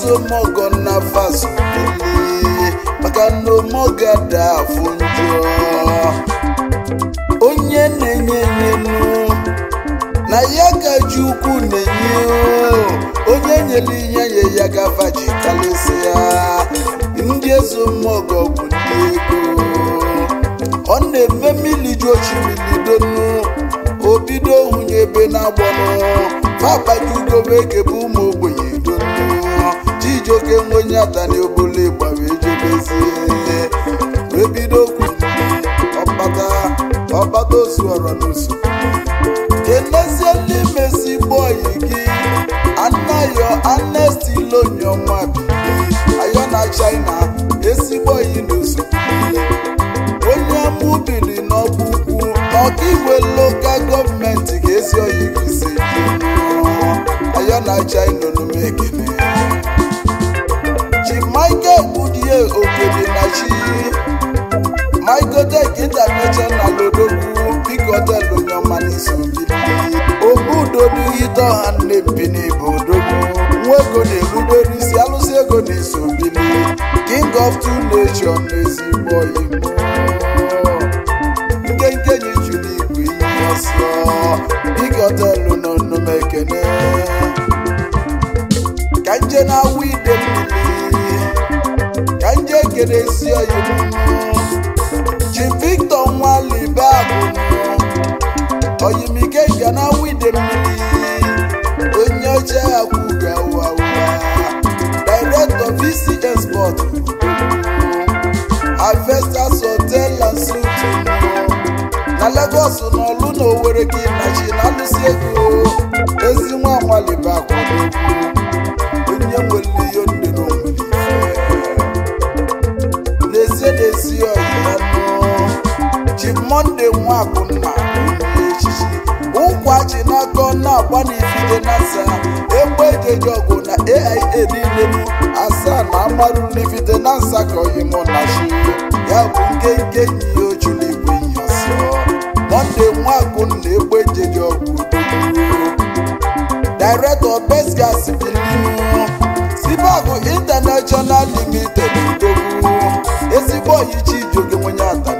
osomọgọ na fazupele maka na omọga da afụ onye na-enye enyenu na ya gaji ukwu na-enye onye nyere ihe nye ya gavaji ya ndị ezomọgọ bụ ndị ego ọ na-eme mmiri ju ochibilidonu obido hụnye ebe na-agbọnụ fa akpata ugobe eke bụ ụmụ ogbe oke nwenye atani obole ịgba wee jebezie wee bido okwu ọkpata ọkpata osu ọrọ n'usu kenezie ndị mesi bọyị gị anayo anesti lonyo nwa bi ayọ na china esigbọyị n'usu onye mụ biri n'ọkpụkpụ igwe lokal gọọmenti ga-esi oyi gị si ayọ na china onume ekene Kelechi Michael Deke International na Lodogwu biko họtelụ onye ọma n'isi obudo n'ite ọha nnebi n'ebe odogwu nwa ego na-ebudoro isi alụsị ego na-eso bili king of two nation n'ezigbo igbo nkenke yi juru igwe ihe ọsọ biko họtelụ nọ nnụmekene ka nje na-awụ Ogedesi Oyemunu Jim Victor Mmiri onye oche akwụga wawa Director VCS Sport Harvesters Hotel and Suite na Lagos na Olu na Owerri gị nachi na alụsi ego ezi nwa na-enwe akụ mma echichi ụkwa ji n'aka na-agba n'ifide na asaa egbe ejeji ọgụ na aia niile bụ asaa na amarụ n'ifide na nsakọghị mụ na ya bụ nke nke yi oju na igwe mọnde nwa akụ na egbe ejeji ọgụ director besgas sibagụ limited togo ezigbo nwenye atara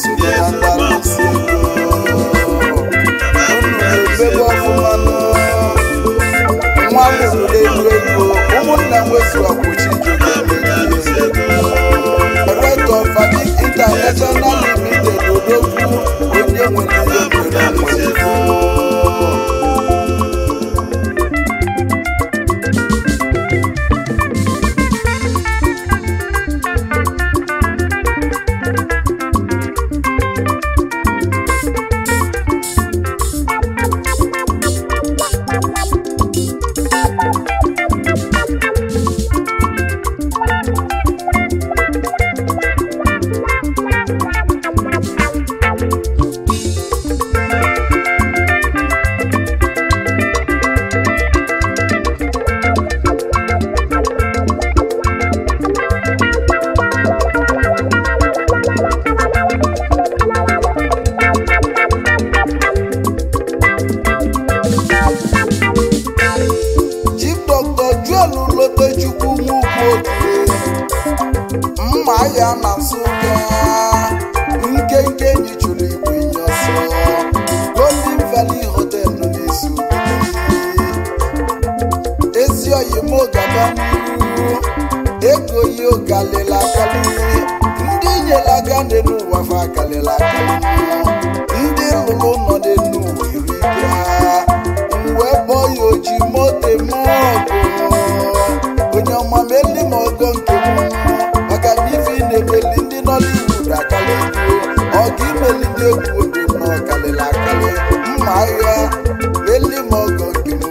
Yesu Bwana ego ya kalịla akalị ndị nyela aga dị n'ụwa fa kalịla akalị ndị lụrụ nọ dị n'ụwa iri ike ha wee bọọ ya oji moto m ọgụ onye ọma meli m ọgọ nke m maka na ife na-emeli ndị nọ n'iwu akalị ọ ga imeli ndị egwu obi m ọkalịla akalị mma agha meli m ọgọ nke m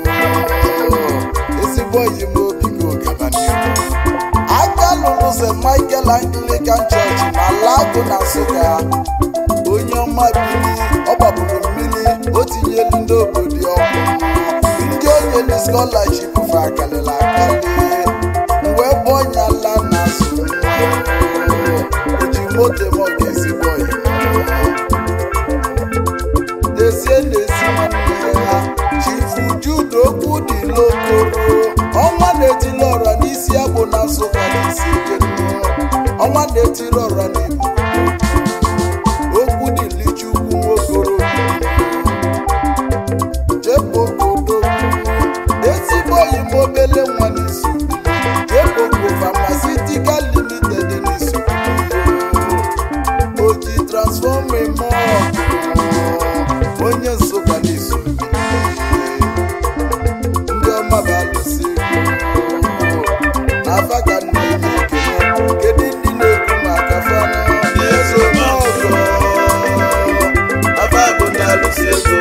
ezigbo oyi m St. Michael Anglican Church na Alagụ na Nsụka onye ọma bili ọ gbapụrụ mmiri o tinyelu ndị obodo ọkụ ndị onye na scholarship fa akalịla akali wee bụọ ọnya ala na sụ ji moto m ga-esi onye nsụka n'izu ndị ọma bụ alụsị kedu ndị na-ekwu maka ọzọ ọma bụ ndị alụsị ego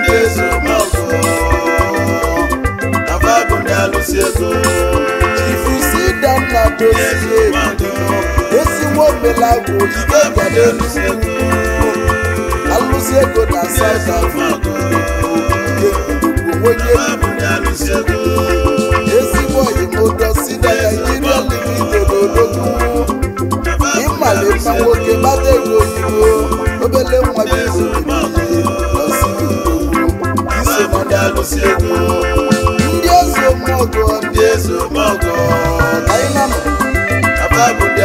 ndị ọzọ ego esi alụsị ego na South Africa onye na nwoke gbata ego oyibo obele nwa gị ndị eze ndị eze omọgọ anyị na ego ndị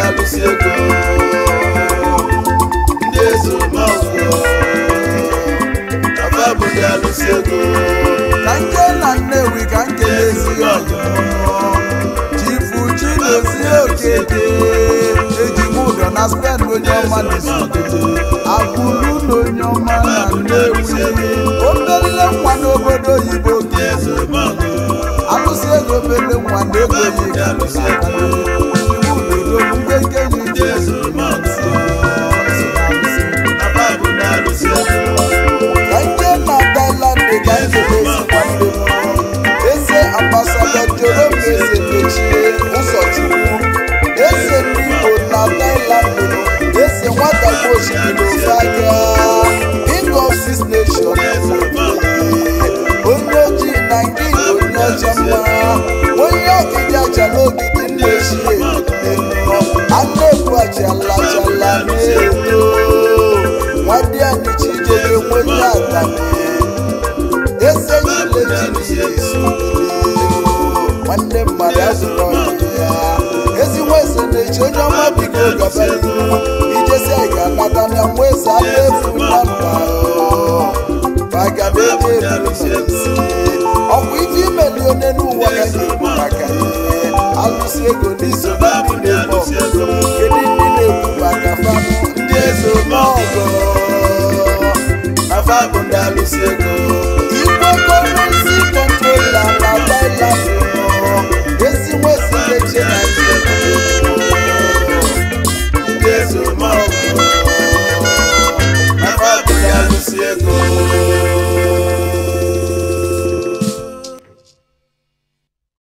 eze omọgọ ka nke na Nnewi ka nke na-ezighi ọjọ chifu chinozie okete ụdọ na spen onye ọma na-esogide akwụlụ ọma na wi. o merile nwa n'obodo oyibo alụsị ego mere nwa n'ego yi bịa ezi na-eche onye ga na efu imeli onye maka ego na na